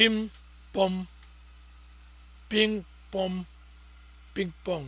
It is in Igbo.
pim pom ping pom ping pong